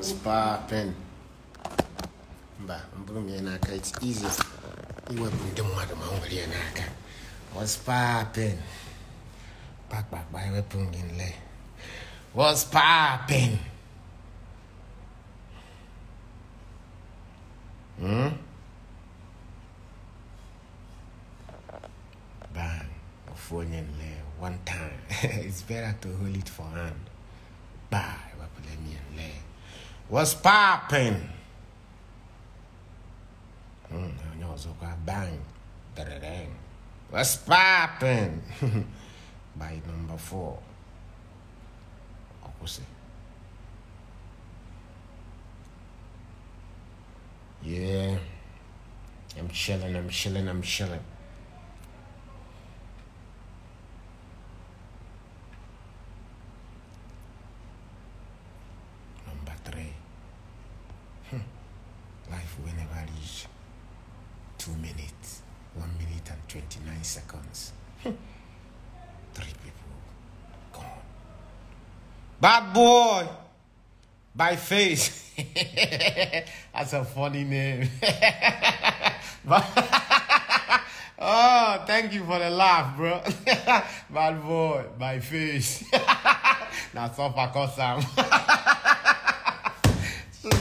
was popping. Mba, mburu mi yanaka, it's easy. Iwe bunde mwadu maunguli yanaka. What's popping? Back, back, back, iwe pungin le. What's popping? Hmm? What's popping? Mm, ọ̀zọ́kọ̀ bang dẹ̀rẹ̀dẹ̀ng. What's popping? By number four. Yeah. I'm chilling, I'm chilling, I'm chilling. life will never reach two minutes, one minute and 29 seconds. Hmm. Three people gone. Bad boy! By face. That's a funny name. oh, thank you for the laugh, bro. Bad boy, by face. That's all for Kosam.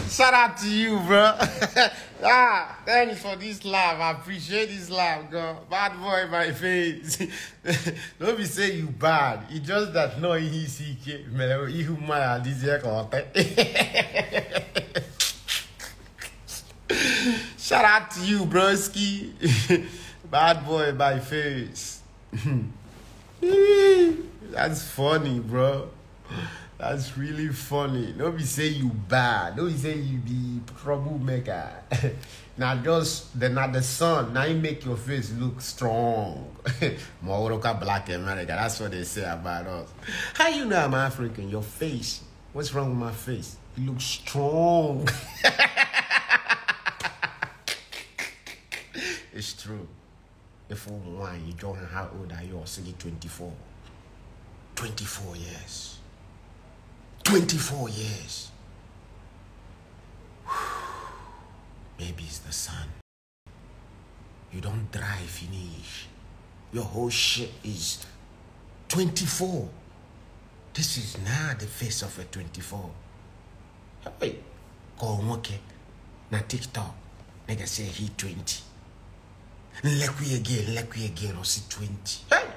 Shout out to you, bro. ah, thanks for this laugh. I appreciate this laugh, God. Bad boy, my face. Don't be saying you bad. It's just that no ECK. Man, you man, this year content. Shout out to you, broski. bad boy, my face. That's funny, bro. That's really funny. Don't be say you bad. Don't be say you be troublemaker. now just then, not the sun. Now you make your face look strong. Morocco black America. That's what they say about us. How you know I'm African? Your face. What's wrong with my face? You look strong. it's true. If one, you don't know how old are you? I'll 24. 24 years. 24 years. Maybe it's the sun. You don't dry finish. Your whole shit is 24. This is now the face of a 24. Hey, go okay. Na TikTok, nigga say he 20. Lekwi again, lekwi again, or see 20. Hey,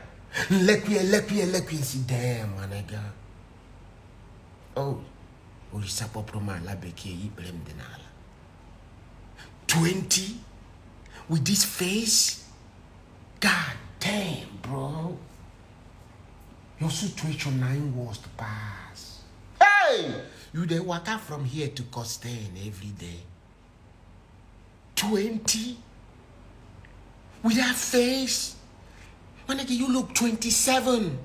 lekwi, lekwi, lekwi, see damn, my nigga oh orisa kpọpụrụ m ala bekee ikpere m dị 20 with this face god damn bro your situation nine was the pass hey you walk waka from here to Costain every day 20 with that face when again you look 27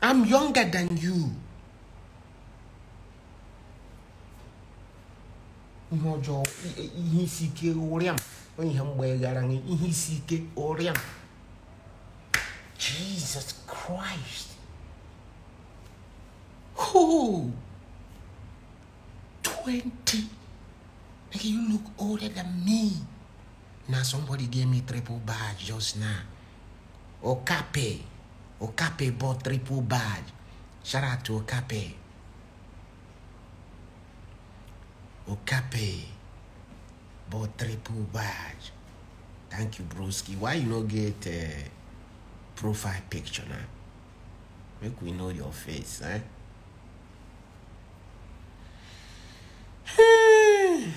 I'm younger than you. Jesus Christ Who? 20 like you look older than me now somebody gave me triple badge just now okape Okape bought triple badge, Shout out to Okape. Okape bought triple badge. Thank you, broski. Why you not get a eh, profile picture now? Make we know your face, eh?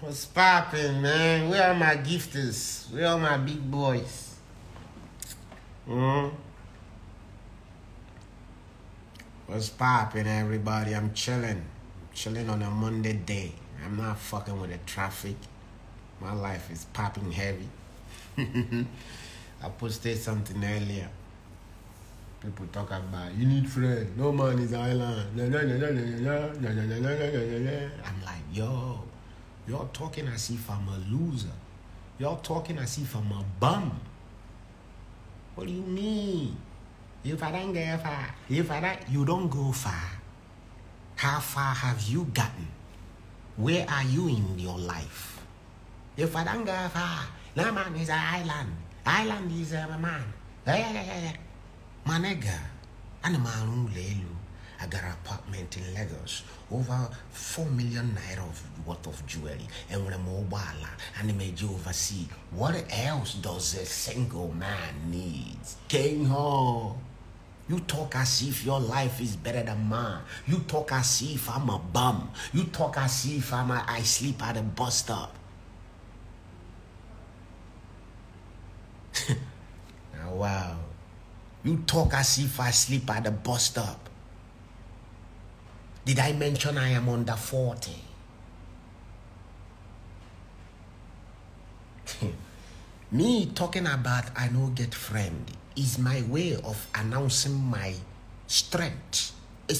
What's popping, man? Where are my gifters? Where are my big boys? Mm-hmm. What's popping, everybody? I'm chilling. I'm chilling on a Monday day. I'm not fucking with the traffic. My life is popping heavy. I posted something earlier. People talk about you need friends. No man is island. I'm like, yo, you're talking as if I'm a loser. You're talking as if I'm a bum. What do you mean? If I don't get far, if I you don't go far. How far have you gotten? Where are you in your life? If I don't get far, no man is an island. Island is a man. Hey, yeah, yeah, yeah. My nigga, animal lelu. I got an apartment in Lagos, over 4 million naira of worth of jewelry, and with a mobile and a major overseas. What else does a single man need? King Ho! You talk as if your life is better than mine. You talk as if I'm a bum. You talk as if I'm a, I sleep at a bus stop. Ah, wow. You talk as if I sleep at a bus stop. Did I mention I am under 40? Me talking about I no get friendly is my way of announcing my strength. I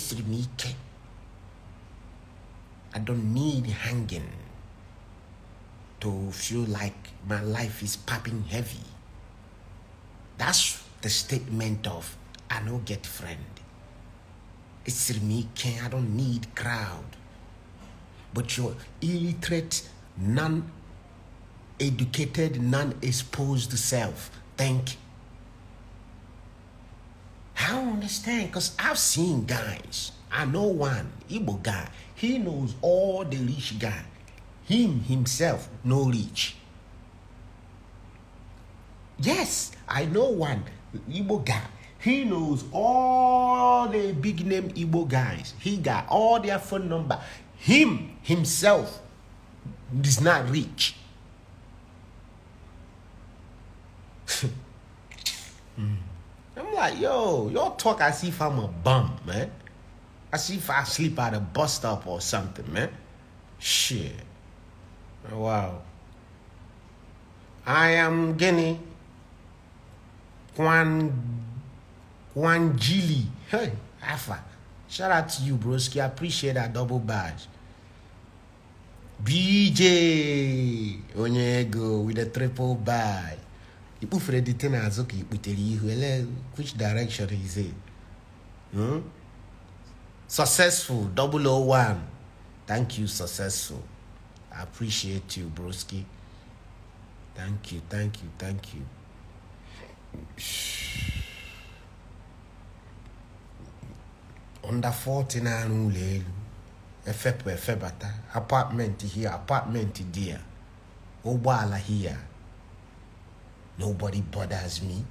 don't need hanging to feel like my life is popping heavy. That's the statement of I no get friend. It's me, I don't need crowd. But your illiterate, non-educated, non-exposed self you. I don't understand because I've seen guys. I know one Igbo guy. He knows all the rich guy. Him himself no rich. Yes, I know one Igbo guy. He knows all the big name Igbo guys. He got all their phone number. Him himself is not rich. I'm like, yo, y'all talk as if I'm a bum, man. As if I sleep at a bus stop or something, man. Shit. Wow. I am Guinea. Kwan Jili. Hey, Alpha. Shout out to you, broski. I appreciate that double badge. BJ Onyego with a triple badge ikpufere dị te which direction is it hmm? successful 001 thank you successful i appreciate you broski thank you thank you thank you under forty nine, na efebata apartment here apartment there Obala here Nobody bothers me.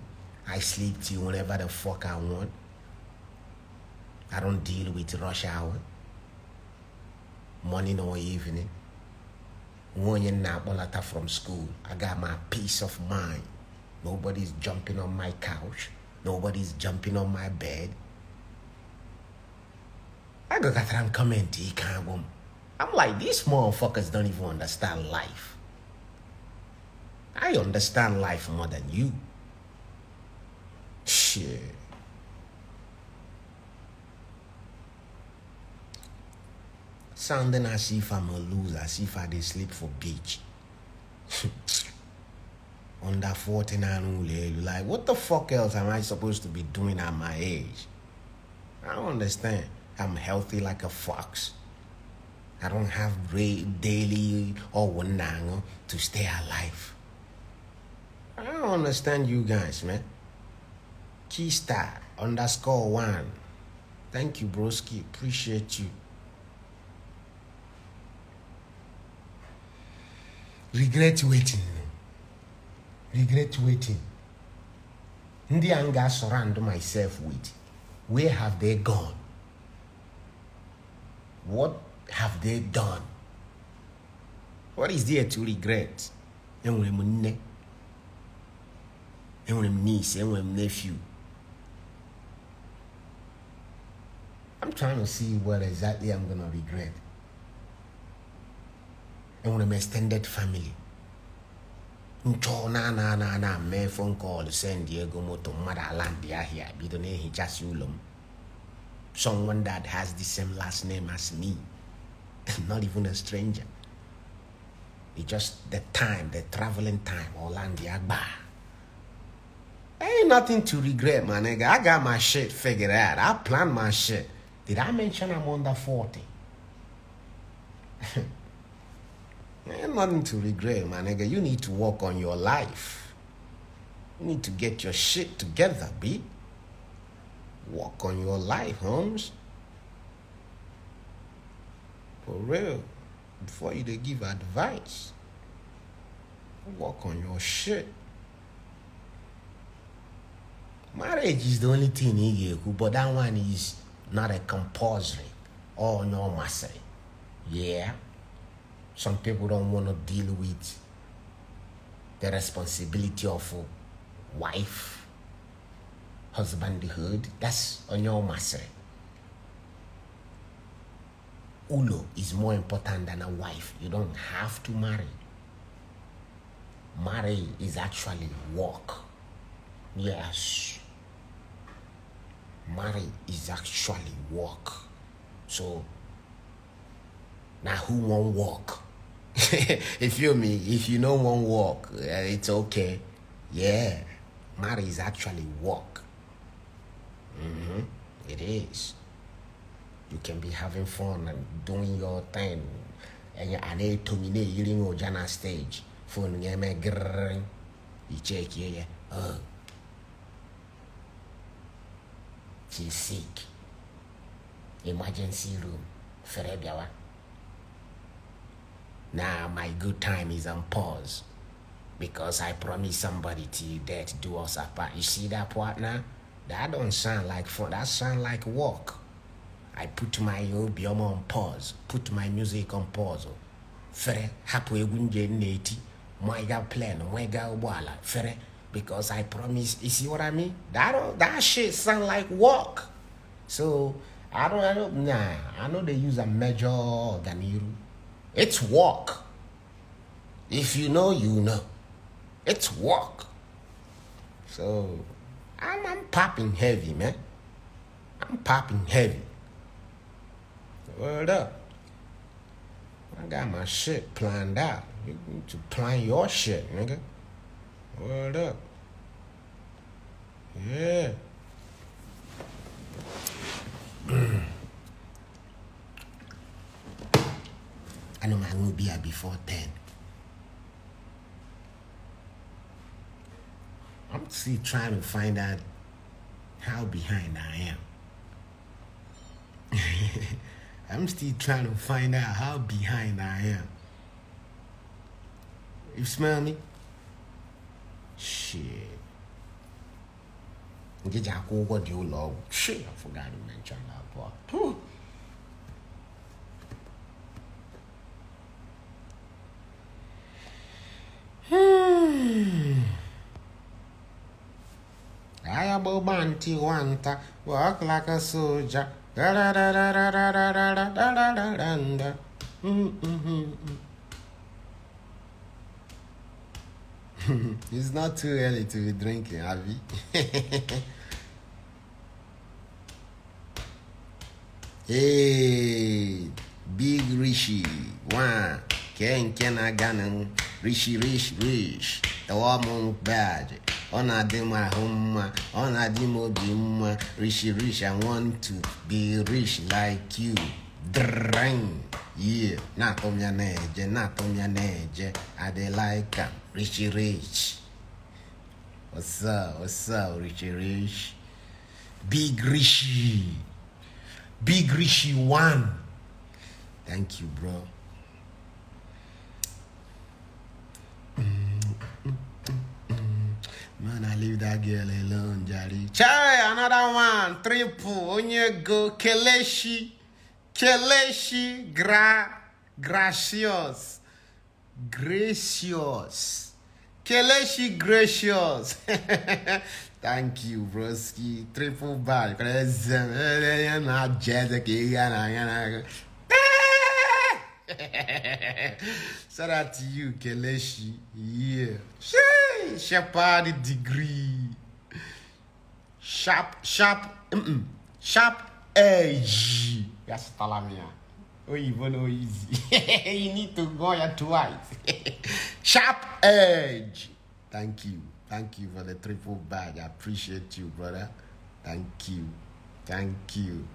I sleep till whenever the fuck I want. I don't deal with rush hour. Morning or evening. When you're not from school, I got my peace of mind. Nobody's jumping on my couch. Nobody's jumping on my bed. I got that I'm coming to I'm like, these motherfuckers don't even understand life. I understand life more than you. Shit. Sounding as if I'm a loser, as if I did sleep for beach. Under 49 like what the fuck else am I supposed to be doing at my age? I don't understand. I'm healthy like a fox. I don't have daily or one to stay alive. I don't understand you guys, man. Keystar underscore one. Thank you, broski. Appreciate you. Regret waiting. Regret waiting. In the anger, surround myself with, where have they gone? What have they done? What is there to regret? enwere niece enwere nephew i'm trying to see what exactly i'm gonna regret enwere extended family nchọ na na na na mee phone call send ego moto mmadụ ala ndị ahịa bido na-ehichasị ụlọ m someone that has the same last name as me not even a stranger it's just the time the traveling time ọla ndị agba Ain't nothing to regret, my nigga. I got my shit figured out. I planned my shit. Did I mention I'm under 40? Ain't nothing to regret, my nigga. You need to work on your life. You need to get your shit together, B. Work on your life, Holmes. For real. Before you they give advice, work on your shit marriage is the only thing i get, but that one is not a compulsory or oh, no ọ yeah some people don't want to deal with the responsibility of a wife husbandhood that's on your masịrị ulo is more important than a wife you don't have to marry marriage is actually work yes marry is actually work. So now who won't work? you me? If you know won't work, eh, it's okay. Yeah, marry is actually work. Mm-hmm. It is. You can be having fun and doing your thing. And you're at a terminate, you're your stage. Phone, you check, yeah, yeah. Uh, She's sick. Emergency room. Ferebiawa. Now my good time is on pause. Because I promised somebody to death do us apart. You see that partner? That don't sound like fun. That sound like work. I put my obioma on pause. Put my music on pause. Fere, hapu egunje neti. Mwaiga plan, mwaiga ubwala. Fere, because I promise. You see what I mean? That that shit sound like work. So I don't, I don't, nah. I know they use a major ganiru. It's work. If you know, you know. It's work. So I'm, I'm popping heavy, man. I'm popping heavy. Word up. I got my shit planned out. You need to plan your shit, nigga. What up. Yeah. I know I will be here before 10. I'm still trying to find out how behind I am. I'm still trying to find out how behind I am. You smell me? 是，你家哥哥牛老，谁也不敢跟你们讲了不？嗯，I about to want to walk like a soldier. it's not too early to be drinking, Avi. hey, Big Rishi. One. Ken Ken Aganan. Rishi Rish Rish. The woman bad. ona na na-adị m ahụ mma ọ na-adị m rishi i want to be rich like you Drang. Yeah, na on your edge, not on I de like him. Richie Rich. What's up? What's up, Richie Rich? Big Richie. Big Richie one. Thank you, bro. Man, I leave that girl alone, Jari. Chai, another one. Triple. Onyego Keleshi. Keleshi gra, gracious. Gracious. Keleshi gracious. Thank you, broski. Triple bad. Shout out to you, Keleshi. Yeah. She, shepherd degree. Sharp, sharp, mm -mm. sharp edge. That's Talamia. Oh, even oh, easy. you need to go here twice. Sharp edge. Thank you. Thank you for the triple bag. I appreciate you, brother. Thank you. Thank you.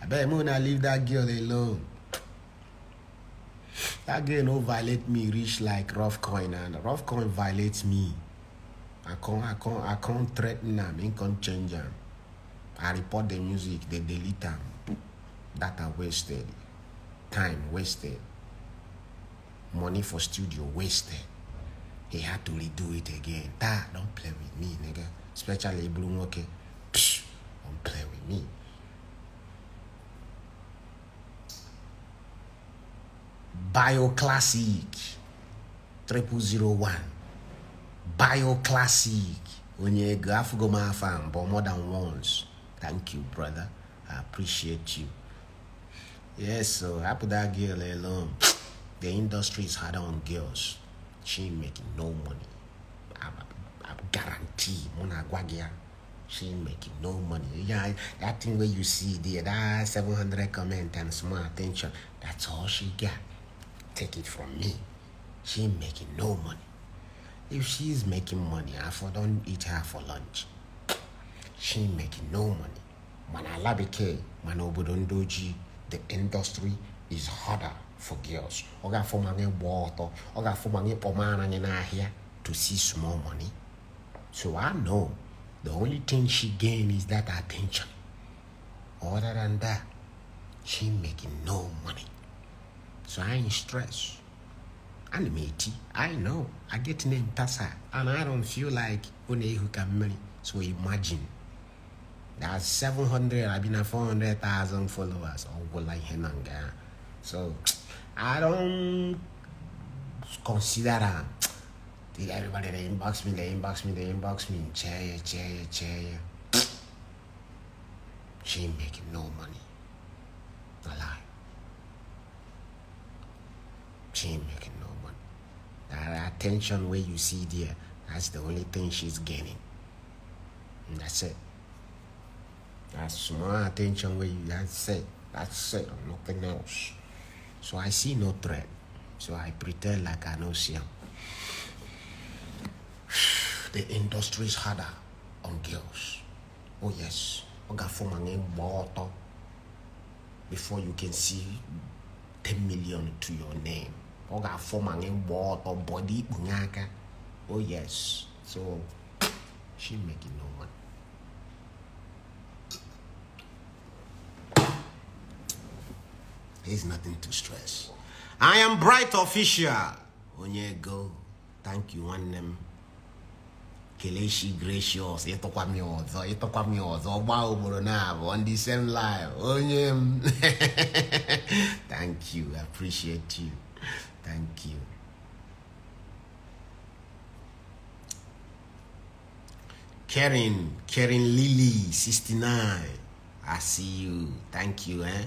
I bet gonna leave that girl alone. That girl don't violate me reach like rough coin and rough coin violates me. I can't I can't I can't threaten them, I can't change them. I report the music, they delete them that are wasted, time wasted, money for studio wasted. He had to redo it again. That don't play with me, nigga. Especially Blue okay. Psh, don't play with me. Bioclassic triple zero one. Bioclassic Onye go afugo ma fan but more than once. Thank you, brother. I appreciate you. Yes, so after that girl alone, eh, the industry is hard on girls. She ain't making no money. I, I, I guarantee, Mona Guagia, she ain't making no money. Yeah, that thing where you see there, that 700 comment and small attention, that's all she got. Take it from me. She ain't making no money. If she's making money, I for don't eat her for lunch. She ain't making no money. Man alabike, mana obodo ndoji the industry is harder for girls. Ọ ga-afụ ma anyị gbaa ọtọ, ọ ga-afụ ma anyị my anyị n'ahịa to see small money. So I know the only thing she gain is that attention. Other than that, she making no money. So I ain't stressed. I'm 80. I know. I get named Tasa. And I don't feel like who can marry. So imagine that's 700. I've been at 400,000 followers. on oh, like Henanga. So I don't consider that. Everybody, they inbox me, they inbox me, they inbox me. Chair, chair, chair. She ain't making no money. No lie. She ain't making no money. That attention where you see there, that's the only thing she's gaining. And that's it. That's my attention where you that's it. That's it, nothing else. So I see no threat. So I pretend like I know Siam. The industry is harder on girls. Oh yes. Oh, Before you can see 10 million to your name. Oh, oh yes. So she making no There's nothing to stress. I am Bright Official. Onyego, thank you, one name. Kaleshi, Gracious, ịtụkwa m ya ọzọ, ịtụkwa m ya ọzọ, same live, onye Thank you, I appreciate you. Thank you. Karen, Karen Lily, 69. I see you. Thank you, eh?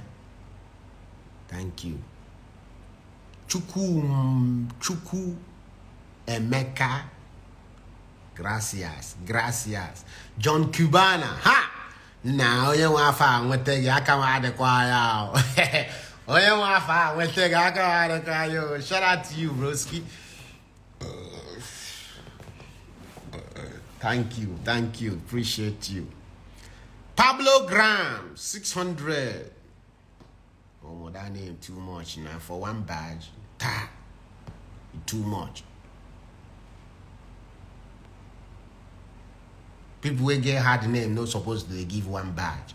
Thank you. Chuku, mm, Chuku Emeka. Gracias, gracias. John Cubana, ha! Now you want to with the Yakama Oh, you want to with the Yakama Shout out to you, Broski. Thank you, thank you, appreciate you. Pablo Graham, 600 that name too much now. For one badge, ta, too much. People will get hard name not supposed to give one badge.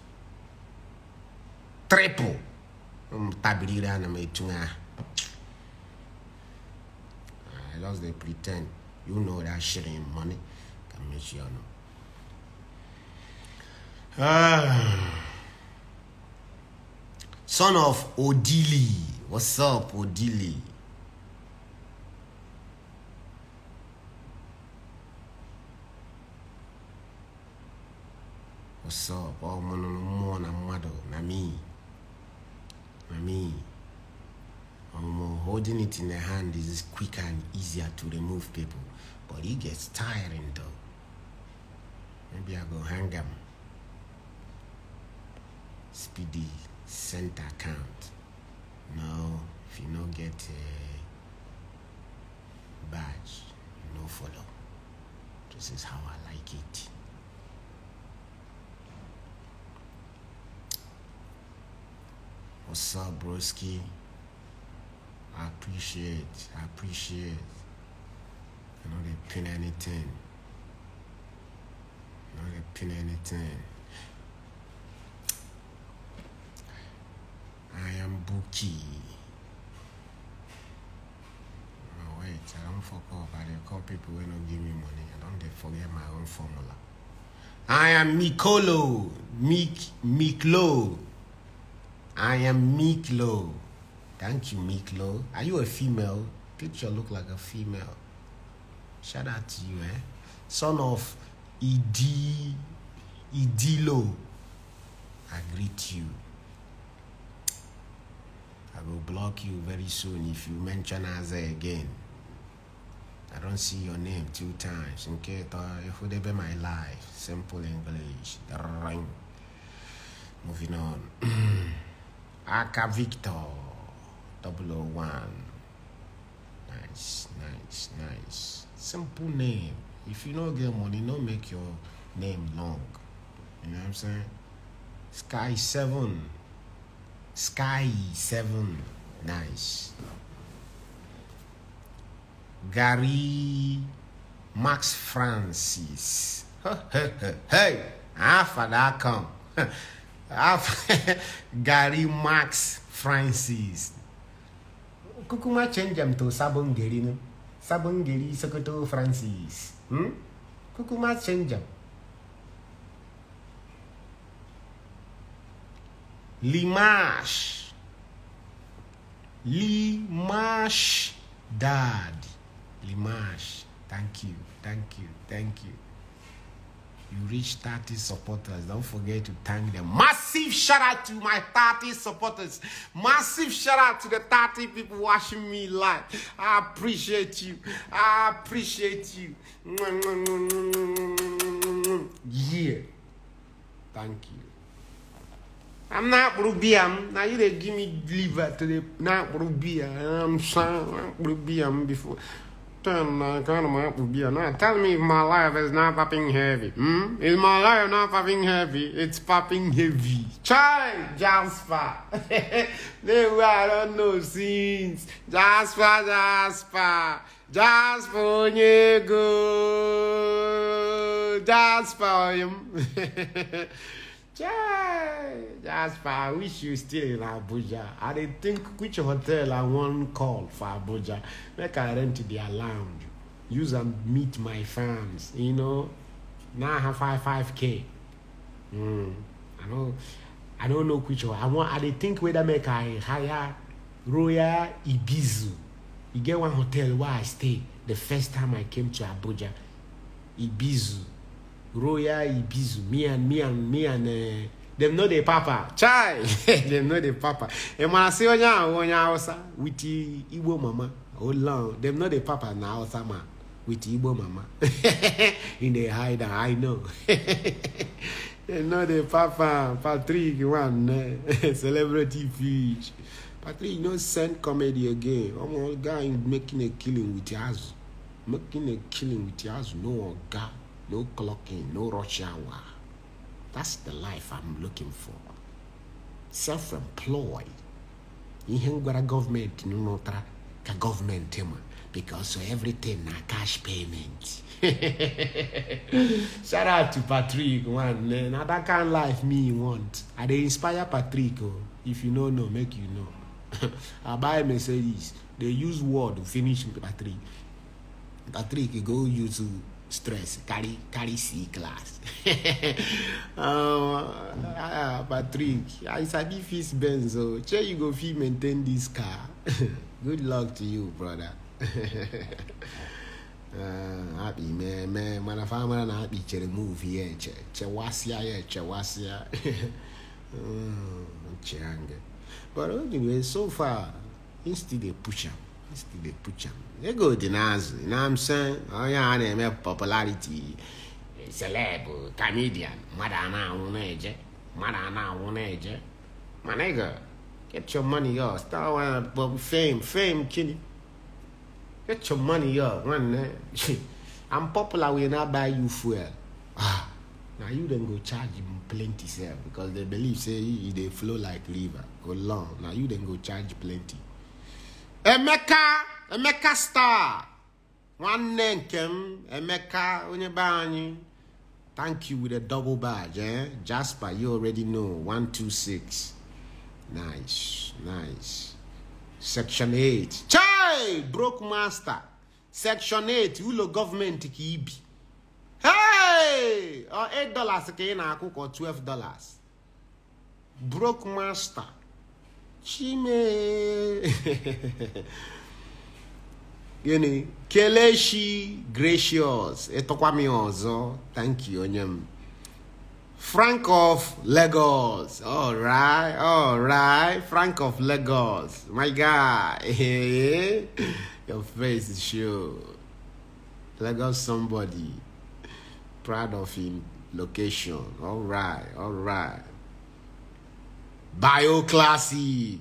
Triple. Mm, Tabirira na I lost the pretend. You know that shit ain't money. Can make you know. Ah son of Odili. What's up, Odili? What's up? Oh, man, no na no, na no, na uh, holding it in the hand is quicker and easier to remove people, but it gets tiring though. Maybe I go hang them. Speedy sent account. Now, if you not get a badge, you no follow. This is how I like it. What's up, broski? I appreciate, I appreciate. You know, they pin anything. You know, they pin anything. I am Buki. Oh, wait, I don't fuck up. I don't call people when not give me money. I don't forget my own formula. I am Mikolo. Mik Miklo. I am Miklo. Thank you, Miklo. Are you a female? Picture look like a female. Shout out to you, eh? Son of Idi Idilo. I greet you. I will block you very soon if you mention Aza again. I don't see your name two times. Okay, be my life. Simple English. Moving on. Aka Victor 001. Nice, nice, nice. Simple name. If you don't get money, don't make your name long. You know what I'm saying? Sky 7. Sky 7. Nice. Gary Max Francis. hey, after that come. Gary Max Francis. Kukuma change them to Sabon Gerino. Sabon Geri Sokoto Francis. Hmm? Kukuma change them. l'image. L'image, dad. L'image. Thank you, thank you, thank you. You reached 30 supporters. Don't forget to thank them. Massive shout out to my 30 supporters. Massive shout out to the 30 people watching me live. I appreciate you. I appreciate you. Yeah. Thank you. I'm not Rubiam. Now you they give me liver to the not Rubiam. I'm sorry, Rubiam before. Turn my kind of my Rubiam. Now tell me if my life is not popping heavy. Hmm? Is my life not popping heavy? It's popping heavy. Child, Jasper. they were I don't know since. Jasper, Jasper. Jasper for Jasper. Yay! That's fine. I wish you still in Abuja. I didn't think which hotel I want call for Abuja. Make I rent their lounge. Use and meet my fans. You know, now I have five five k. Mm. I don't. I don't know which one. I want. I didn't think whether make I hire Royal Ibizu. You get one hotel where I stay the first time I came to Abuja. Ibizu. royal ibizu me and me and me and uh, eh, dem no dey papa chai dem no dey papa ẹ máa sí onye àwọn onye hausa with igbo mama hold oh, on dem no dey papa na hausa man with igbo mama in dey hide am i know dem no dey papa patrick one eh, celebrity fish patrick no send comedy again ọmọ ọ̀gá im making a killing with yazu making a killing with yazu no ọ̀gá. no clocking, no rush hour. That's the life I'm looking for. Self-employed. government, gwara gọọmenti n'ụtara ka government ma because everything na cash payment shout out to patrick one. Another that kind life me want i they inspire patrick oh. if you no know make you know i buy mercedes They use word finish patrick patrick go youtube stress carry carry c class um, ah patrick i sabi fix benz o oh. shey you go fit maintain this car good luck to you brother ah, happy man man mana fa mara na happy chere move here che chewasịa ya chewasịa nche ah, ange but anyway so far he still dey push am he still dey push am They go denounce, you know what I'm saying? Oh yeah, they my popularity. Celeb, comedian, Madana Uneje, Madana Uneje. My nigga, get your money up. Start with fame, fame, kiddy. Get your money up, run there. Eh? I'm popular when I buy you fuel. Ah, now you then go charge him plenty sir, because they believe say they flow like river. Go long. Now you then go charge plenty. Emeka! Eh, hey, emeka star nwanne nke m emeka onye be anyị thank you with a double badge eh? jasper you already know 126 nice nice section 8 chai broke master section 8 ụlọ gọọmenti ka ibi hey! 8 dollars ka ị na-akwụ ka 12 dollars broke master chime gịnị know, Kaleshi, gracious ịtụkwa m thank you onyem. frank of lagos alright alright frank of lagos my guy your face is show lagos somebody proud of him location alright alright classic.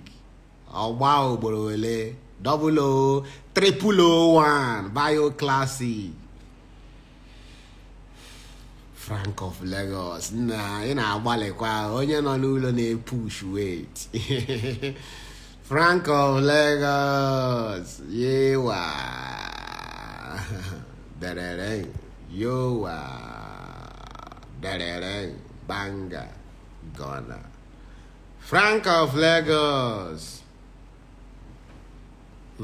Oh wow, ole double O, triple O one, bio Frank of Lagos na ị na-agbalịkwa onye nọ n'ụlọ na-epush wait Frank of Lagos yewa derere yowa derere banga gona Frank of Lagos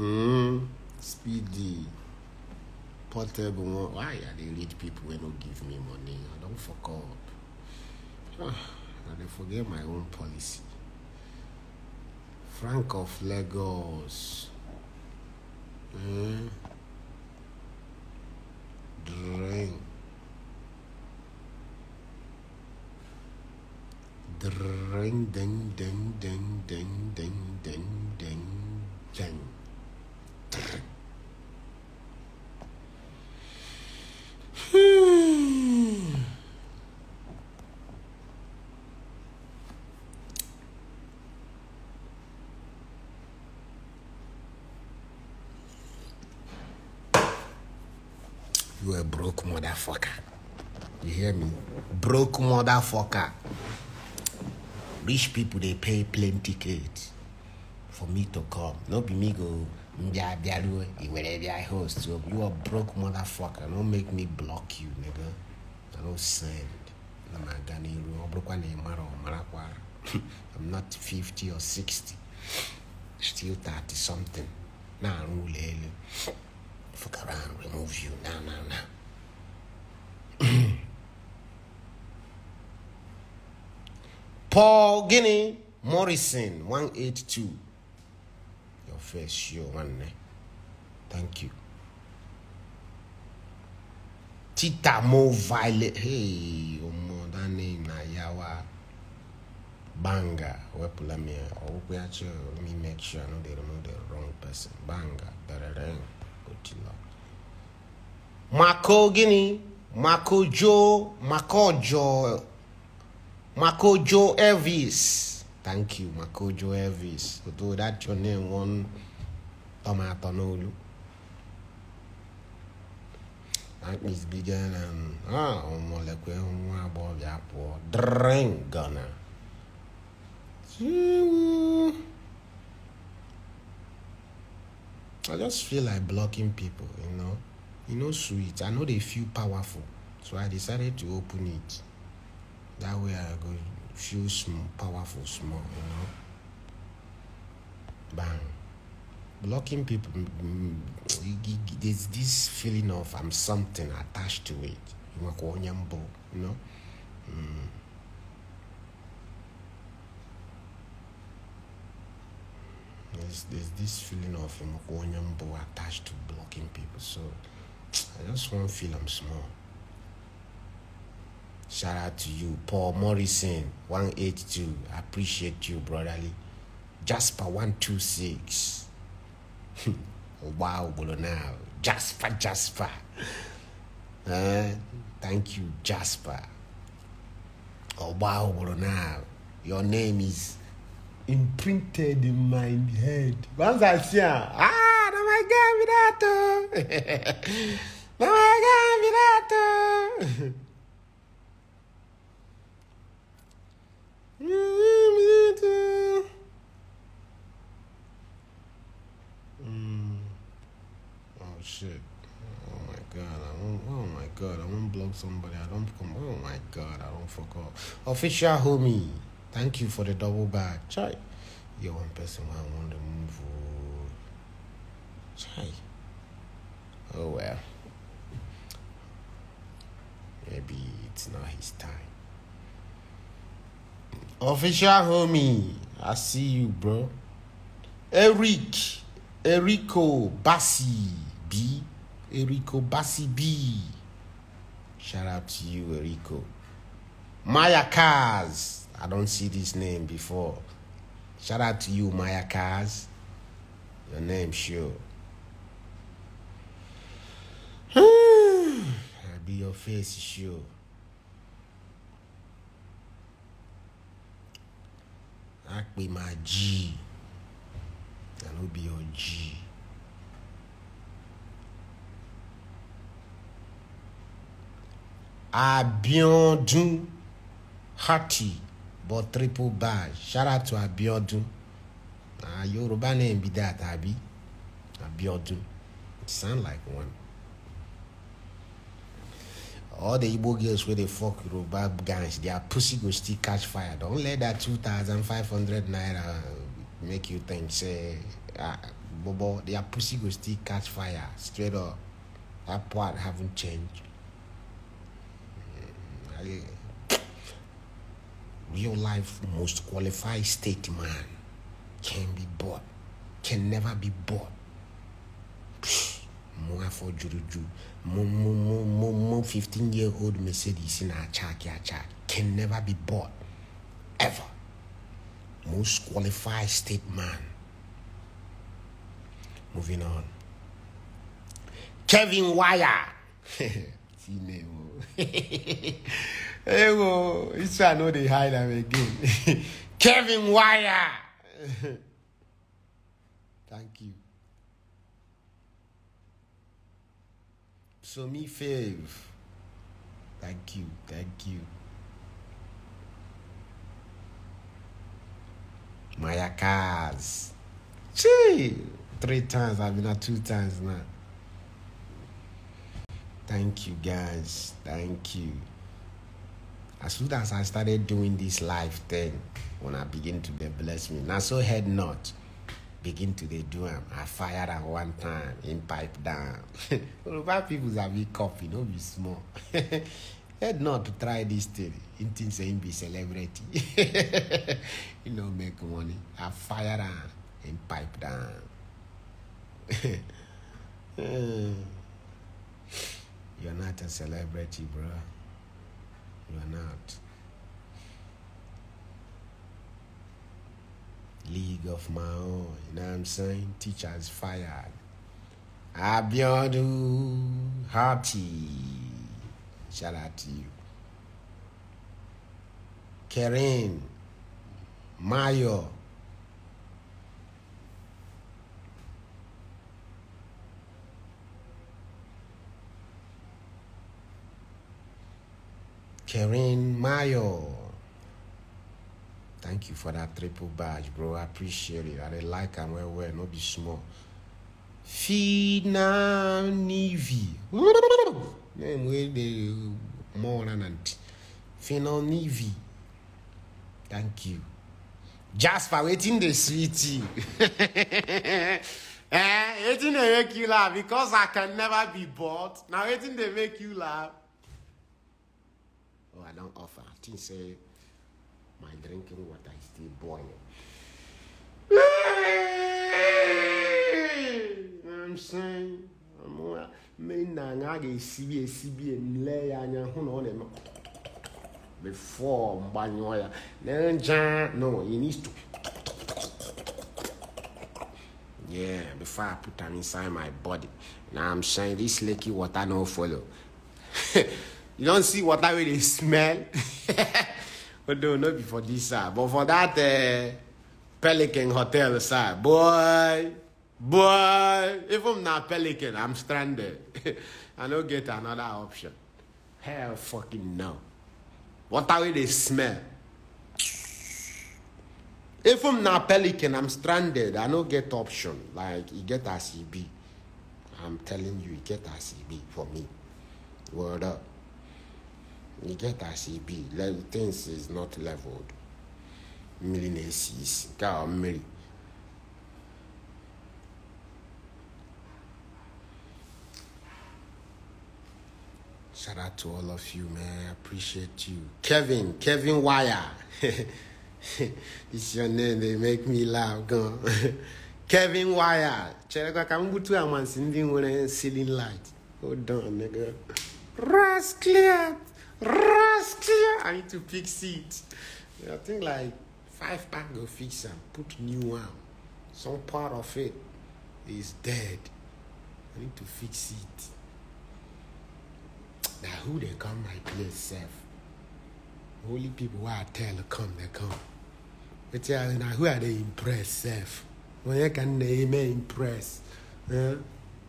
Mm, speedy. Portable Why are they rich people when don't give me money? I don't fuck up. and ah, I forget my own policy. Frank of Lagos. Mm. Drink. Drink, ding, ding, ding, ding, ding, ding, ding, ding. You a broke motherfucker. You hear me? Broke motherfucker. Rich people, they pay plane tickets for me to come. No be me go you are broke motherfucker Don't make me block you nigga ị don't send. I'm not send I'm not 50 or 60 still 30 something Now, aru ụlọ fuck around remove you now now now Paul Guinea Morrison 182 confess you nwanne eh? thank you titamo violet hey omo that name na yawa banga wepụla m ya ọgwụgwụ ya chọ me make sure no dey remove the wrong person banga berere otilo mako gịnị mako jo mako jo mako jo elvis Thank you, Makojo Elvis. Although that's your name one tomato nolu. That bigger than ah, omolekwe above yapo. Drink to I just feel like blocking people, you know. You know, sweet. I know they feel powerful, so I decided to open it. That way, I go feel small, powerful, small, you know. Bang. Blocking people, there's this feeling of I'm something attached to it. You know? Mm. There's, there's this feeling of attached to blocking people. So I just want to feel I'm small. Shout out to you, Paul Morrison, 182. I appreciate you, brotherly. Jasper, 126. wow, Now, Jasper, Jasper. Uh, thank you, Jasper. Oh, wow, Now, Your name is imprinted in my head. Once I see her, ah, no my God, Minato. no my God, Minato. somebody. I don't come. Oh my God, I don't fuck up. Official homie, thank you for the double bag. Chai, you're one person I want to move. Oh. Chai. Oh well. Maybe it's not his time. Official homie, I see you, bro. Eric, Erico Bassi B, Erico Bassi B. Shout out to you, Rico. Maya Cars. I don't see this name before. Shout out to you, Maya Cars. Your name, sure. I'll be your face, sure. I be my G. I will be your G. Abiodun Hati, but triple bar. Shout out to Abiodun. Uh, Yoruba name be that, Abi. Abiodun. It sound like one. All the Igbo girls where they fuck Yoruba guys, their pussy go still catch fire. Don't let that 2,500 naira make you think, say, ah, Bobo, their pussy go still catch fire. Straight up. That part haven't changed. Real life, most qualified statesman can be bought, can never be bought. More for Juruju, more 15 year old Mercedes in our chak, can never be bought, ever. Most qualified statesman. Moving on. Kevin Wire. See hey, well, this one know they hide them again. Kevin Wire. Thank you. So me fave. Thank you. Thank you. Maya Cars. Gee, three times. I've been at two times now. Thank you, guys. Thank you. As soon as I started doing this live thing, when I begin to be bless me. Now so head not. Begin to they do them. I fired at one time in pipe down. Yoruba people have be coffee, no be small. head not to try this thing. In things saying be celebrity. you know, make money. I fired at in pipe down. uh. You're not a celebrity, bro. You're not. League of my own. You know what I'm saying? Teachers fired. Abiodu, Happy. Shout out to you. Karen Mayo. Karen Mayo. Thank you for that triple badge, bro. I appreciate it. I like and well, well, not be small. Fina Nivi. the more than auntie. Fina Nivi. Thank you. Jasper, waiting the sweetie. eh, waiting they make you laugh because I can never be bored. Now waiting they make you laugh or I don't offer. Think say my drinking water is still boiling. I'm saying I'm ana a ga-esibi esibi emle ya anya hụ na ọ na-eme before mgbanyụọ ya no He needs to yeah before i put am inside my body Now i'm saying this leaky water no follow you don't see water I really smell don't oh, know before this side but for that uh, pelican hotel side boy boy If I'm not pelican i'm stranded i no get another option hell fucking no water I really smell If I'm not pelican i'm stranded i no get option like you get as be i'm telling you you get as be for me word up you get as e be. Like, things is not leveled. Millionaires God, Mary. Shout out to all of you, man. I appreciate you. Kevin, Kevin Wire. it's your name. They make me laugh. Go. Kevin Wire. Cherekwa kambutu amansi ndi ngone ceiling light. Hold on, nigga. Clear. I need to fix it. I think like five pack go fix and put new one. Some part of it is dead. I need to fix it. Now who they come my place self? Only people who I tell come they come. But yeah, now who are they impress self? When I can they impress? Huh? Eh?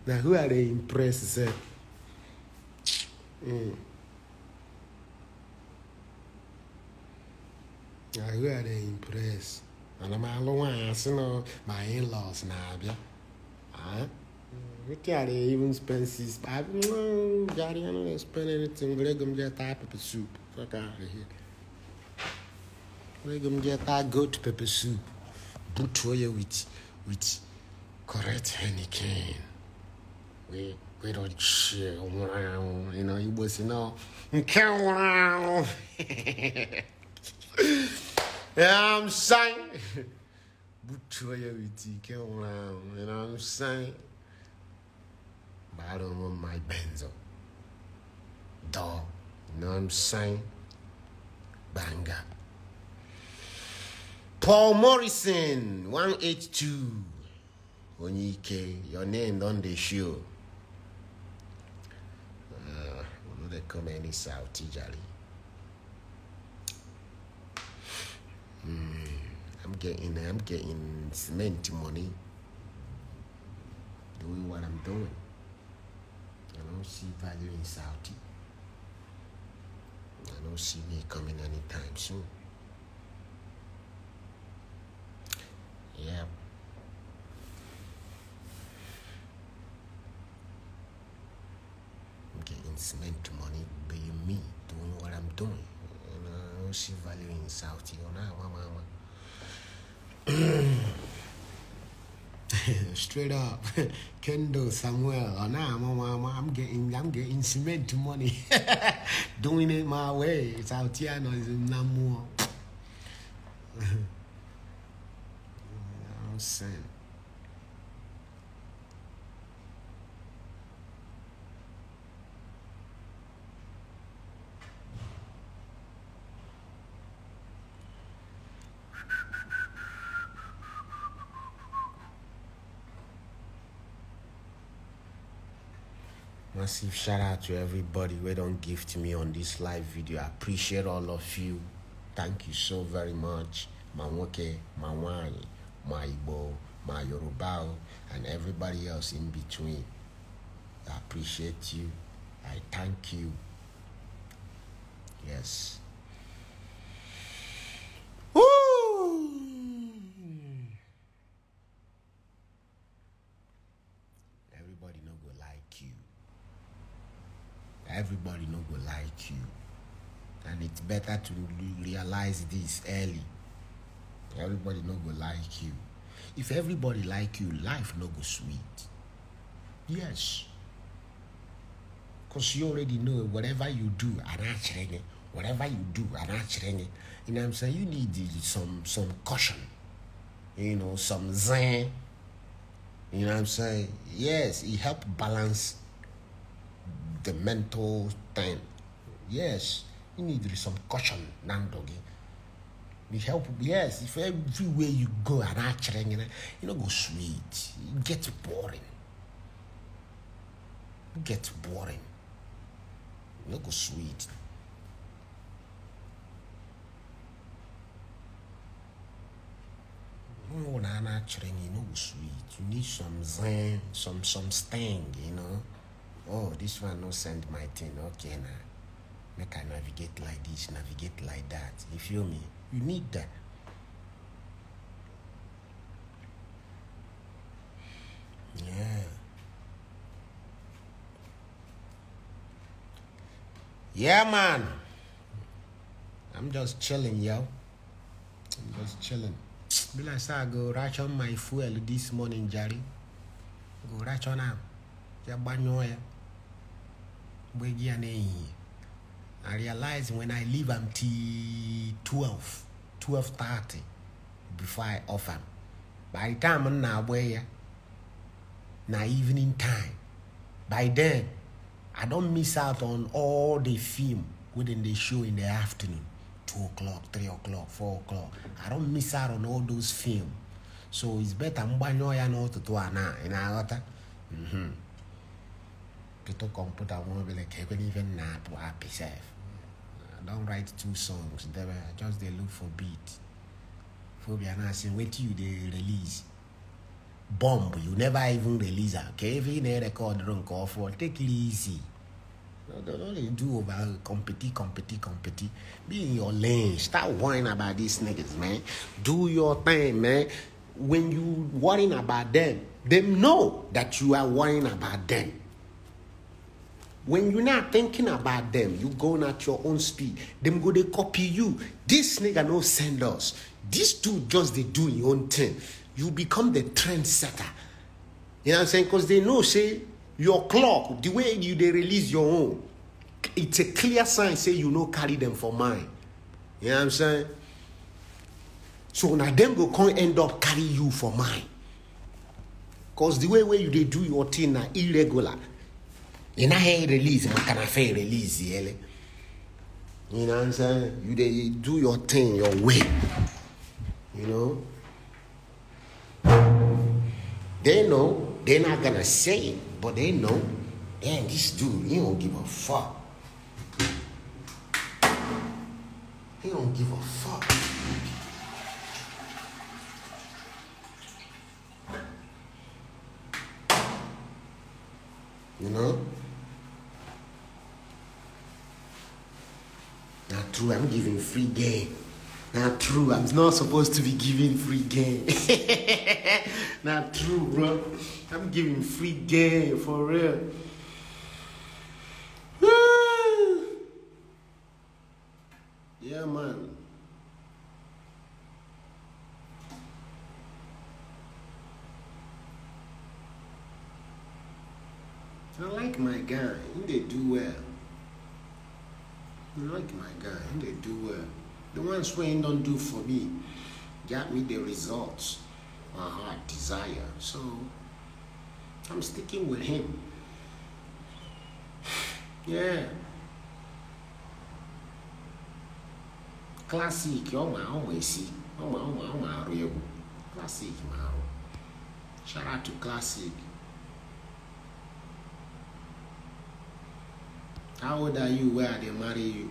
Now who are they impress self? Mm. I heard they impressed. And I'm all once, you know, my in laws now, yeah. Huh? What are they even spend six? I don't know, spend anything. But they gonna get that pepper soup. Fuck out of here. gonna get that goat pepper soup. Boot for you with, with correct Henneken. We, we don't chill around, you know, you was, you know, come around. you know I'm saying? Butoya with you, around. You know what I'm saying? don't want my benzo. Dog. You know what I'm saying? Banger. Paul Morrison, 182. Onyike, your name on the show. Uh, we know they come any South, Tijali. I'm getting I'm getting cement money doing what I'm doing. I don't see value in Saudi. I don't see me coming anytime soon. Yeah. I'm getting cement money being me doing what I'm doing ship value in Saudi or Straight up, Kendall Samuel. Oh, nah, mama, I'm getting, I'm getting cement money, doing it my way. It's out here, no, it's no more. I'm saying. massive shout out to everybody who don't gift me on this live video. I appreciate all of you. Thank you so very much. Mamoke, Manwani, my Igbo, my Yoruba, and everybody else in between. I appreciate you. I thank you. Yes. it's better to realize this early everybody no go like you if everybody like you life no go sweet yes because you already know whatever you do whatever you do you know i'm saying you need some some caution you know some zen you know i'm saying yes it help balance the mental thing yes you need some caution, Nandogi. The help, yes, if everywhere you go and actually, you know, you know, go sweet, Get boring. Get boring. You know, go sweet. You know, actually, you know, go sweet. You need some zen, some some sting, you know. Oh, this one no send my thing, okay now. Nah make I navigate like this, navigate like that. You feel me? You need that. Yeah. Yeah, man. I'm just chilling, yo. I'm just chilling. Be like, sir, go on my fuel this morning, Jerry. Go on am. Yeah, banyo, yeah. We're I realize when I leave until 12, 12.30 before I offer. By the time I'm now where, now evening time, by then, I don't miss out on all the film within the show in the afternoon. 2 o'clock, 3 o'clock, 4 o'clock. I don't miss out on all those film. So it's better mgbanyo ya n'ụtụtụ a na ị na-aghọta ketu kọmputa nwa obere ka ebe n'ife na-apụ apị sef don't write two songs dem just they look for beat phobia now say till you they release bomb you never even release a kevin e eh, record run For take it easy no not only do over compete compete compete be in your lane start worrying about these niggas man do your thing man when you worrying about them them know that you are worrying about them when you're not thinking about them, you going at your own speed. Them go they copy you. This nigga no send us. This dude just they do your own thing. You become the trendsetter. You know what I'm saying? Because they know, say, your clock, the way you they release your own, it's a clear sign, say you no carry them for mine. You know what I'm saying? So now them go come end up carry you for mine. Because the way where you they do your thing now irregular ị hate release can't fe release you know what i'm saying you dey do your thing your way you know they know they're not gonna say it but they know damn this dude he don't give a fuck he don't give a fuck you know Not true, I'm giving free game. Not true, I'm not supposed to be giving free game. not true, bro. I'm giving free game for real. yeah, man. I like my guy, they do well like my guy, they do well. The ones when don't do for me, got me the results my heart desire. So I'm sticking with him. Yeah. Classic, oh my, oh my, see, oh my, oh my, oh my, classic, my. Shout out to Classic. How old are you where they marry you?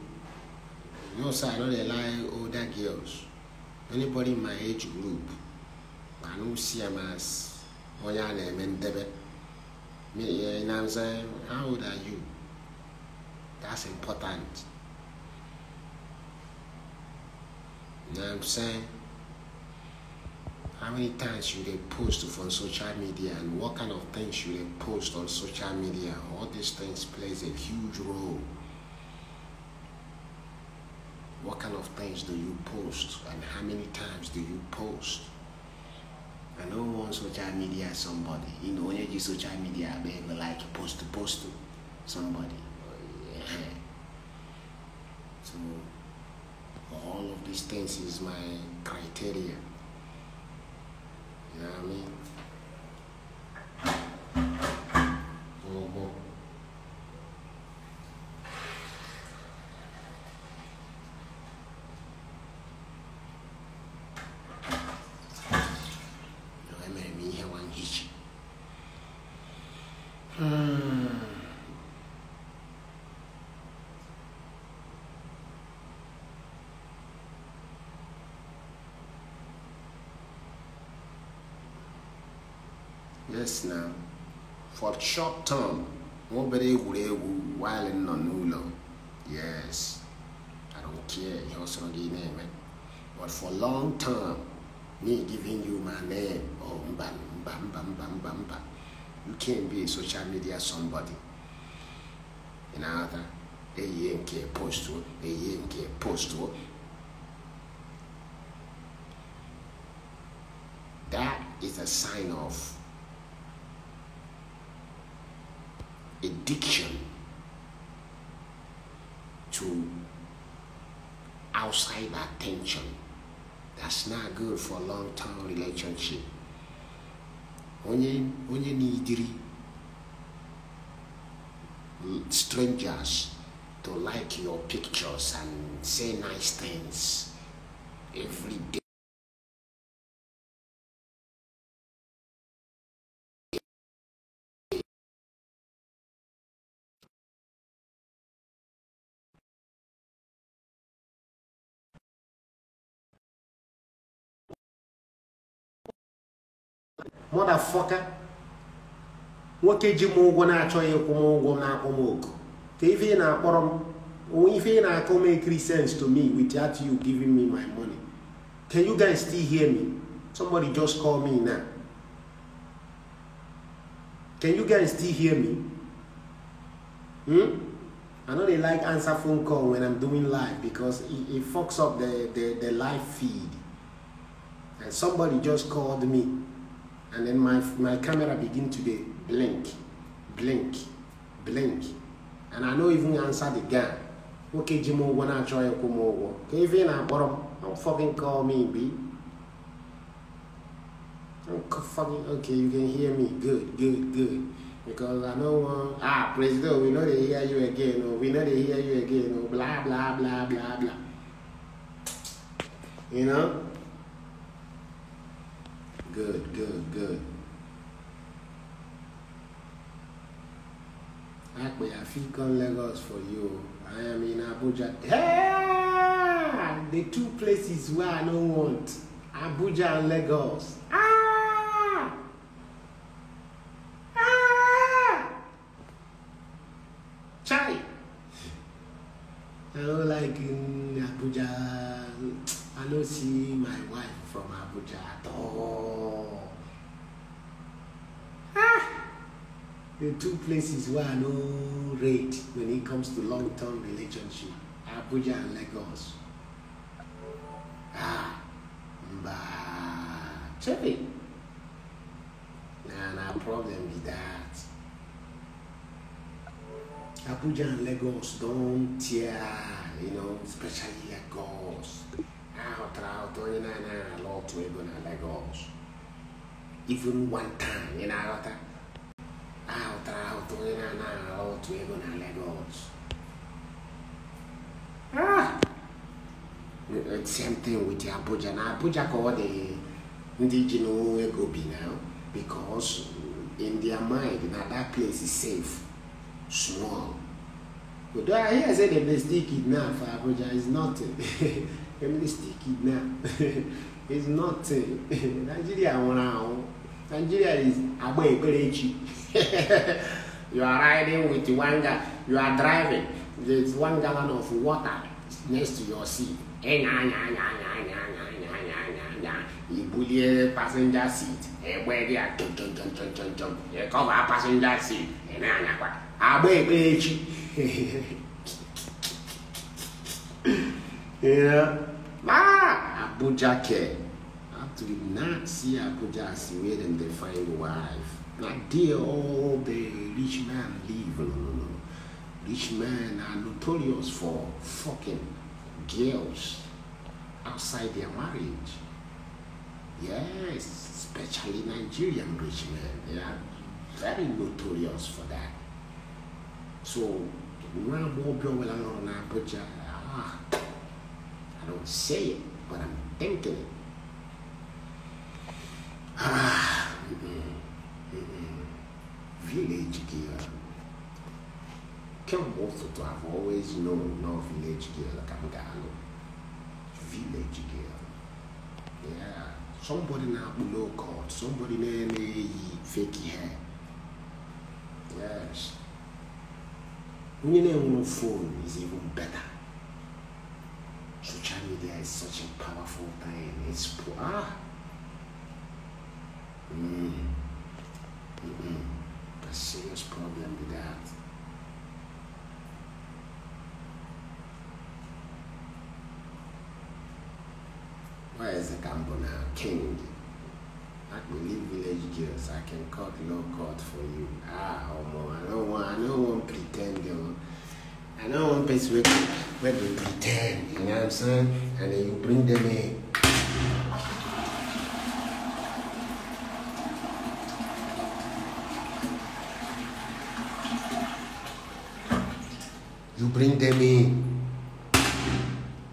No, sir, I don't older girls. Anybody in my age group, I don't see them as Oya Nemendebe. Eh, you know what I'm saying? How old are you? That's important. You know what I'm saying? How many times should they post on social media and what kind of things should they post on social media? All these things plays a huge role. What kind of things do you post and how many times do you post? I don't want social media somebody. You know, when you do social media, I mean, like post to post to somebody. So all of these things is my criteria. You know what I mean? yes now for short term nobody would egwuregwu while nọ n'ụlọ yes i don't care ihe ọsọrọ gị na-eme but for long term me giving you my name oh bam, bam, bam, bam, bam, bam, you can not be a social media somebody in other eyie nke post, eyie nke postuo that is a sign of addiction to outside attention. That's not good for a long-term relationship. Only, onye nidiri strangers to like your pictures and say nice things every day. Motherfucker, nwoke ji m ụgwọ na-achọghị ịkwụ m ụgwọ na-akwụ m oku ka ife ị na-akpọrọ m ife ị na-akọ make sense to me without you giving me my money can you guys still hear me somebody just call me now can you guys still hear me hmm? I know they like answer phone call when I'm doing live because it, fucks up the, the, the live feed and somebody just called me and then my, my camera begin to be blink, blink, blink. And I no even answer the guy. Okay, Jimo, when I try to come over. Okay, even I bottom, don't fucking call me, B. Don't fucking, okay, you can hear me. Good, good, good. Because I know, uh, ah, President, we know they hear you again, or oh. we know they hear you again, or oh. blah, blah, blah, blah, blah. You know? good, good, good. I Akpe Afikon Lagos for you. I am in Abuja. Yeah! The two places where I don't want. Abuja and Lagos. Ah! Ah! Chai! I don't like in Abuja. I don't see my wife from Abuja at all. the two places where I know rate when it comes to long-term relationship, Abuja and Lagos. Ah, mba, chevy. Nah, nah, problem with that. Abuja and Lagos don't tear, you know, especially Lagos. Out, out, you know, a lot to Lagos. Even one time, you know, a ọ tara ahụhụ onye na-anaghị aghọ otu ego same thing with Abuja Now Abuja ka the indigenous ndị ji n'onwe ego bi because in their mind now that place is safe small But I hear say dem dey still kidnap for Abuja is nothing dem dey still now. It's nothing Nigeria nwụrụ Nigeria is agba very cheap. you are riding with one guy, you are driving, there's one gallon of water next to your seat. You bully your passenger seat. Where they are, jump, jump, jump, jump, jump, jump. You cover a passenger seat. yeah. Ah, Abuja care. Actually, not see Abuja as where them define wife. Nigeria all the rich man live. Rich men are notorious for fucking girls outside their marriage. Yes, especially Nigerian rich men. They are very notorious for that. So, i ah, I don't say it, but I'm thinking it. Ah, mm village girl. Can also to have always known no village girl like Amgalo. Village girl. Yeah. Somebody now below court, somebody named fake hair. Yes. When you phone is even better. Social media is such a powerful thing. It's poor, ah. Mm. Mm-hmm. Mm-mm. a serious problem with that. Where is the now? king? I can leave village girls. I can cut no cut for you. Ah, Omo, I don't want. I don't want pretend. Yo. I don't want place where where they pretend. You know what I'm saying? And then you bring them in. prendemi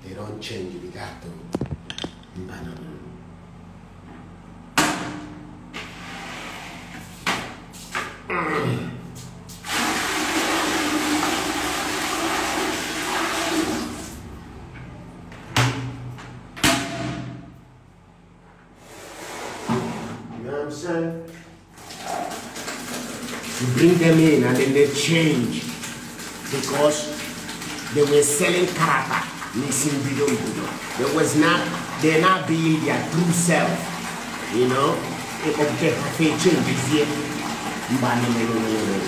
e non cendi di gatto in mano. Mm. Bring them in and then they change. true self. You know, it object fait changes yet. Mbani me lo lo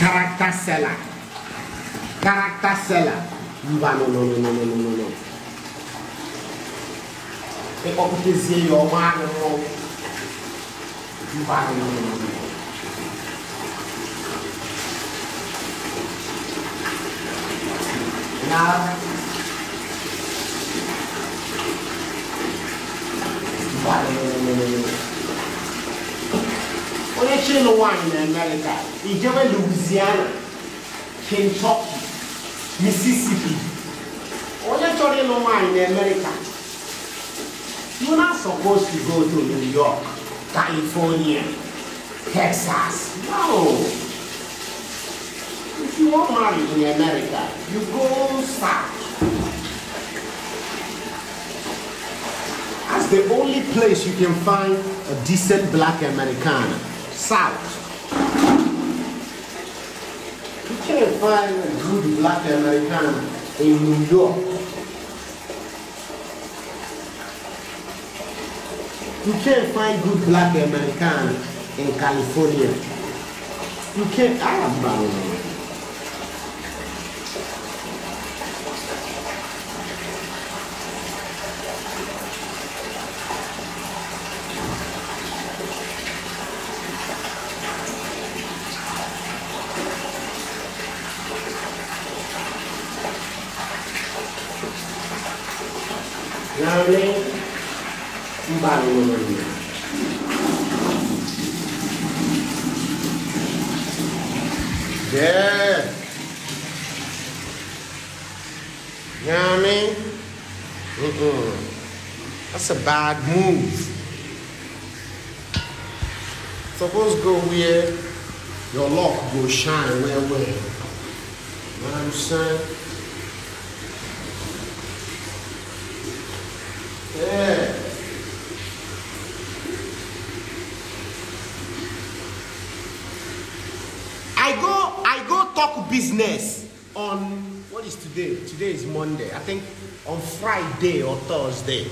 Character seller. Character seller. no no no no no no no no. E see your mbano no. are no no no no. caminar onye chịrị nwaanyị na amerịka ijewe louisiana kentucky mississippi onye chọrọ ịlụ nwaanyị na America. you you're not supposed to go to new york california texas no you want married in America, you go south. That's the only place you can find a decent black Americana, south. You can't find a good black Americana in New York. You can't find good black Americana in California. You can't, I am bound. bad move. Suppose go where your luck will shine Where, well. You know what I'm saying? Yeah. I go I go talk business on what is today? Today is Monday. I think on Friday or Thursday.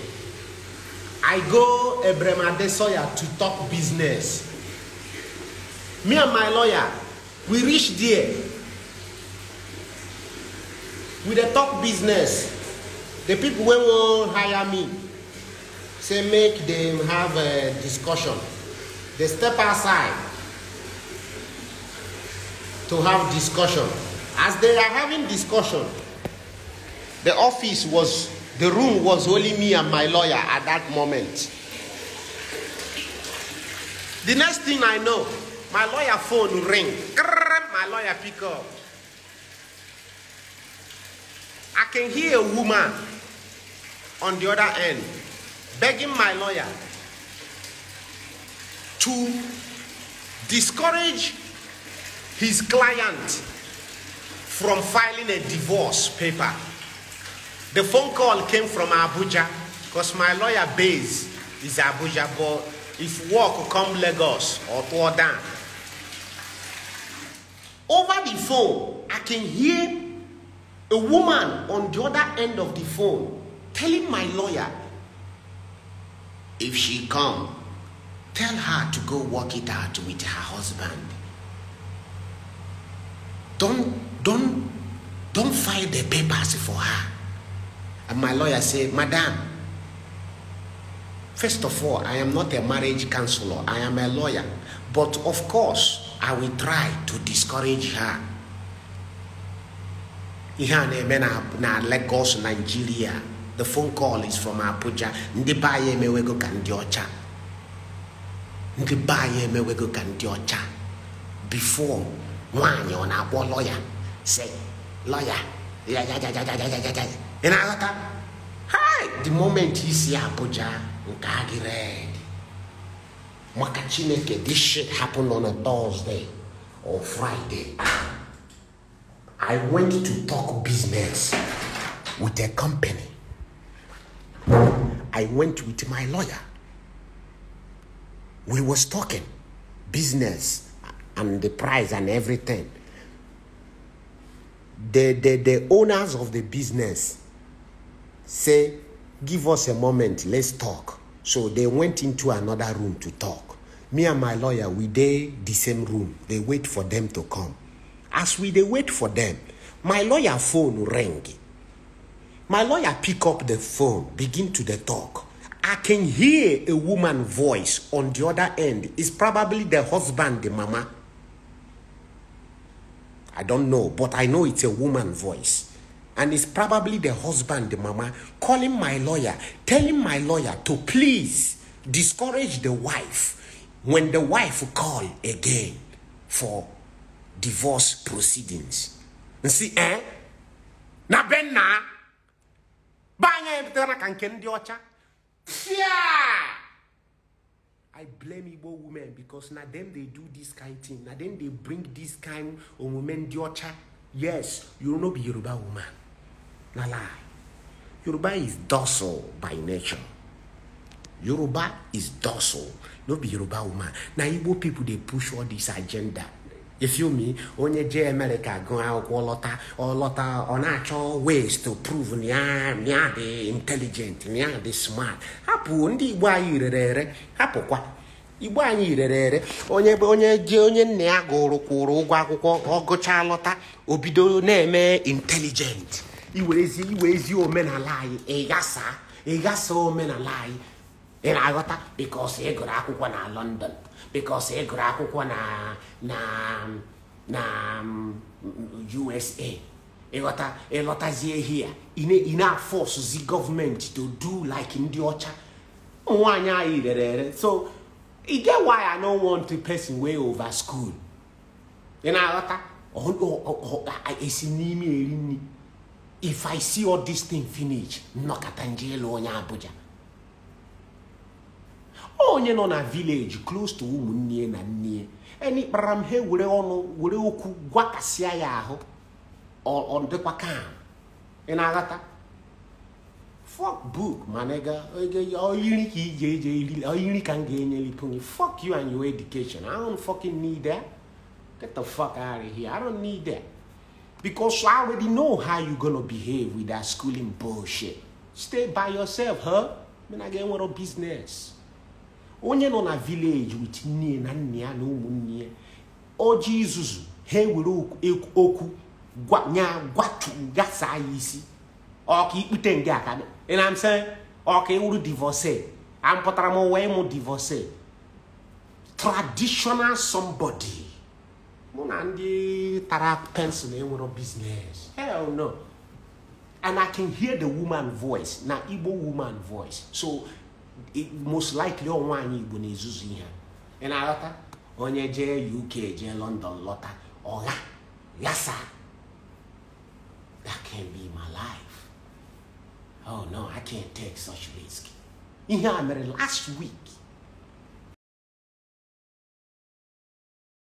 I go Abraham Adesoya to talk business. Me and my lawyer, we reach there. We dey talk business. The people when will hire me say make them have a discussion. They step outside to have discussion. As they are having discussion, the office was the room was only me and my lawyer at that moment. The next thing I know, my lawyer phone ring. My lawyer pick up. I can hear a woman on the other end begging my lawyer to discourage his client from filing a divorce paper. The phone call came from Abuja because my lawyer base is Abuja, but if work come Lagos or Jordan. Over the phone, I can hear a woman on the other end of the phone telling my lawyer, if she come, tell her to go work it out with her husband. Don't, don't, don't file the papers for her. And my lawyer said, Madam, first of all, I am not a marriage counselor, I am a lawyer. But of course, I will try to discourage her. ihe a na-eme na Lagos Nigeria the phone call is from Abuja ndị be anyị emewego ka ndị ọcha ndị before nwaanyị ọ na-akpọ lọya lawyer, lọya ya ị na-aghọta hi, the moment isi Abuja nke red maka this shit happened on a Thursday or Friday I went to talk business with a company I went with my lawyer we was talking business and the price and everything the, the, the owners of the business say, Give us a moment, let's talk. So they went into another room to talk. Me and my lawyer, we they the same room. They wait for them to come. As we they wait for them, my lawyer phone rang. My lawyer pick up the phone, begin to the talk. I can hear a woman voice on the other end. It's probably the husband, the mama. I don't know, but I know it's a woman voice and it's probably the husband, the mama, calling my lawyer, telling my lawyer to please discourage the wife when the wife call again for divorce proceedings. You see, eh? Na ben na? Banya ebitana kanken diocha? Yeah! I blame Igbo women because now them they do this kind of thing. Now then they bring this kind of women diocha. Yes, you will not be Yoruba woman. na lie. Yoruba is docile by nature. Yoruba is docile. No be Yoruba woman. Na Igbo people dey push all this agenda. If You me? Onye je America go akwụkwọ lọta ọlọta ọ na-achọ ways to prove nya nya dị intelligent nya dị smart. Hapụ ndị Igbo anyị rere ere hapụkwa. Igbo anyị rere ere onye onye je onye nne ya gụrụ kwụrụ ụgwọ akwụkwọ ọ gụchaa lọta o bido na-eme intelligent. iwerezi iwe ezi omenala anyị ịghasa ịghasa omenala anyị ị aghọta bikos ị gụrụ akwụkwọ na london bikos ị gụrụ akwụkwọ na na na mm, usa ịghọta ịlọtazie hia ị na-afọsụzi gọọmenti to do like ndị ọcha nwanyị anyị rere ere so ị get why i no want to person way over school ị aghọta esi n'ime eri nri if i see all this thing finish nnọkọta nje onye abuja onye nọ na village close to ụmụnne na nne eni kpara m ha were ọnụ were okwu gwakasịa ya ahụ ọ dịkwa kam ị na-aghọta mane book managa oyiri ka ije ije oyiri ka m ga-enyelite fok you and your education i don't fucking need that get the fuck out of here i don't need that Because I already know how you're gonna behave with that schooling bullshit. Stay by yourself, huh? I mean, I get one of business. Onye nọ na village with nne na nne ya na ụmụnne ya. Ọjị izuzu ha oku gwa nya gwatu gasa ya isi. Ọka ikpute nga aka. Ị na m sị ọka ịwụrụ divorce. A m pụtara m wee divorce. Traditional somebody. mụ na ndị tara pensụl enwero biznes hell no and i can hear the woman voice na igbo woman voice so it most likely one nwaanyị igbo na-ezuzu ihe ị na-aghọta onye jee uk jee london lọta ọgha yasa that can be my life oh no i can't take such risk ihe a mere last week